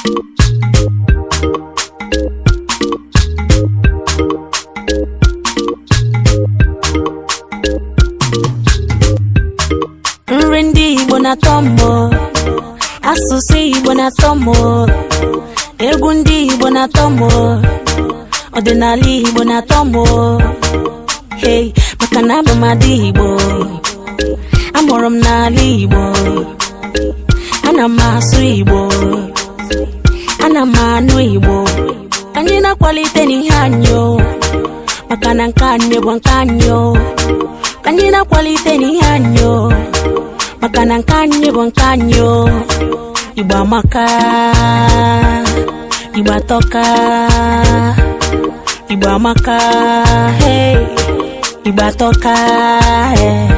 nri ndị igbo na-atọ asụsụ igbo na-atọ mbọ egwu ndị igbo na-atọ mbọ ọdịnala igbo na-atọ mbọ maka na abụ igbo amụrụ m n'ala igbo ana m asụ igbo ana m anụ igbo anyị na-akwalite n'ihe anyị maka na nke anyị bụ nke anyị anyị na-akwalite n'ihe anyị maka na nke anyị bụ nke anyị igbo amaka igbo atọka igbo amaka hey igbo atọka hey.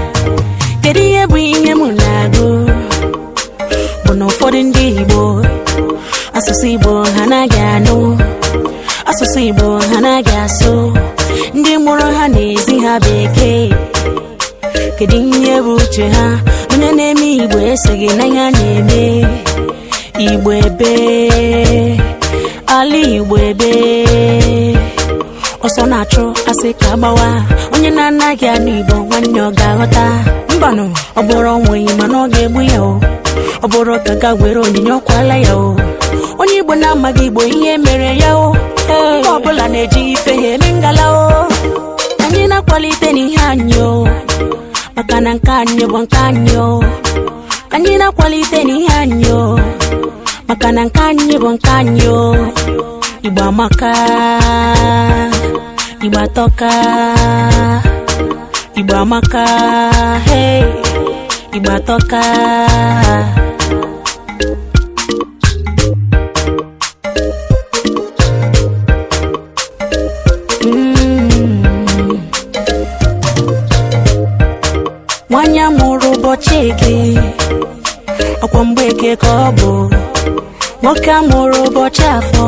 asụsụ Igbo ha anaghị asụ ndị mụrụ ha na-ezi ha bekee kedu ihe bụ uche ha onye na-eme Igbo esoghị n'ihe a na-eme Igbo ebe ala Igbo ebe ọsọ na-achụ asị ka gbawa onye na-anaghị anụ Igbo nwanne ọ ga-aghọta mbanụ ọ bụrụ onweghị mana ọ ga-egbu ya o ọ bụrụ ka ga were onyinye ọkwala ya o onye Igbo na-amaghị Igbo ihe mere ya o Onye ọbụla na-eji ife ya eme ngala o anyị na-akwalite n'ihe anyị o maka na nke anyị bụ nke anyị o anyị na-akwalite n'ihe anyị o maka na nke anyị bụ nke anyị o Igbo amaka Igbo atọka Igbo amaka hey Igbo atọka nwanya mụrụ ụbọchị eke ọkwa mgbeke ka ọ bụ nwoke amụrụ ụbọchị afọ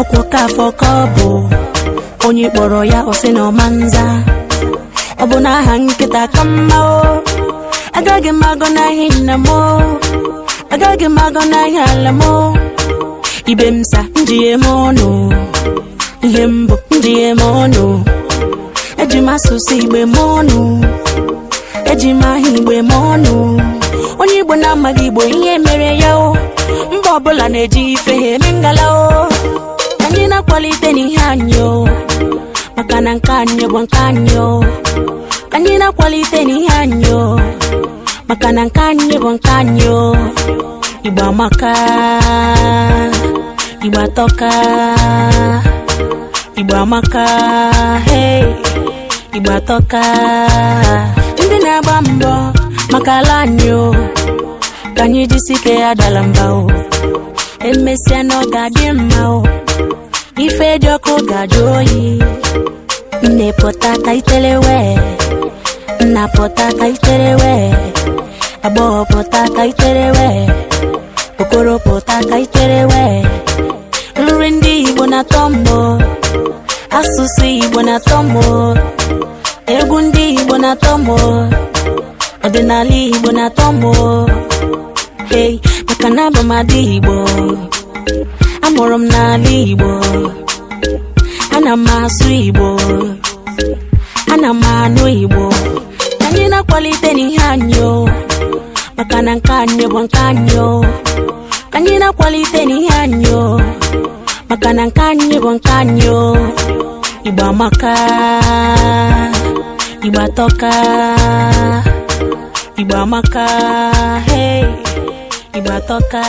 ọkwa ka afọ ka ọ bụ onye kpọrọ ya ọsị na ọmanza ọ bụ na aha nkịta ka mma o agaghị m n'ahịa nna m agaghị m n'ahịa ala m ibe m sa njighe m ọnụ ihe mbụ njighe m ọnụ eji m asụsụ igbe m ọnụ eji m aha igbe ma ọnụ onye igbo na-amaghị igbo ihe mere ya o mba ọbụla na-eji ife ha eme ngala o anyị na-akwalite n'ihe anyị maka na nke anyị bụ nke anyị o anyị na-akwalite n'ihe anyị maka na nke anyị bụ nke anyị o igbo amaka igbo atọka igbo amaka igbo atọka na-agba mbọ maka ala anyị o ka anyị jisi ya dara o emesịa na ọ ga-adị mma o ife dị ọkụ ga-ajụ oyi nne pụta wee nna pụta itere wee agbọghọ pụta itere wee okoro pụta itere wee nri ndị Igbo na-atọ mbọ asụsụ Igbo na-atọ mbọ egwu ndị igbo na-atọ m ọdịnala igbo na-atọ m hey maka na abụ m igbo amụrụ m n'ala igbo ana m asụ igbo ana m anụ igbo ka anyị na-akwalite n'ihe anyị maka na nke anyị bụ nke anyị ka anyị na-akwalite n'ihe anyị maka na nke anyị bụ nke anyị igbo amaka Igbo toka Igbo amaka hey Igbo atọka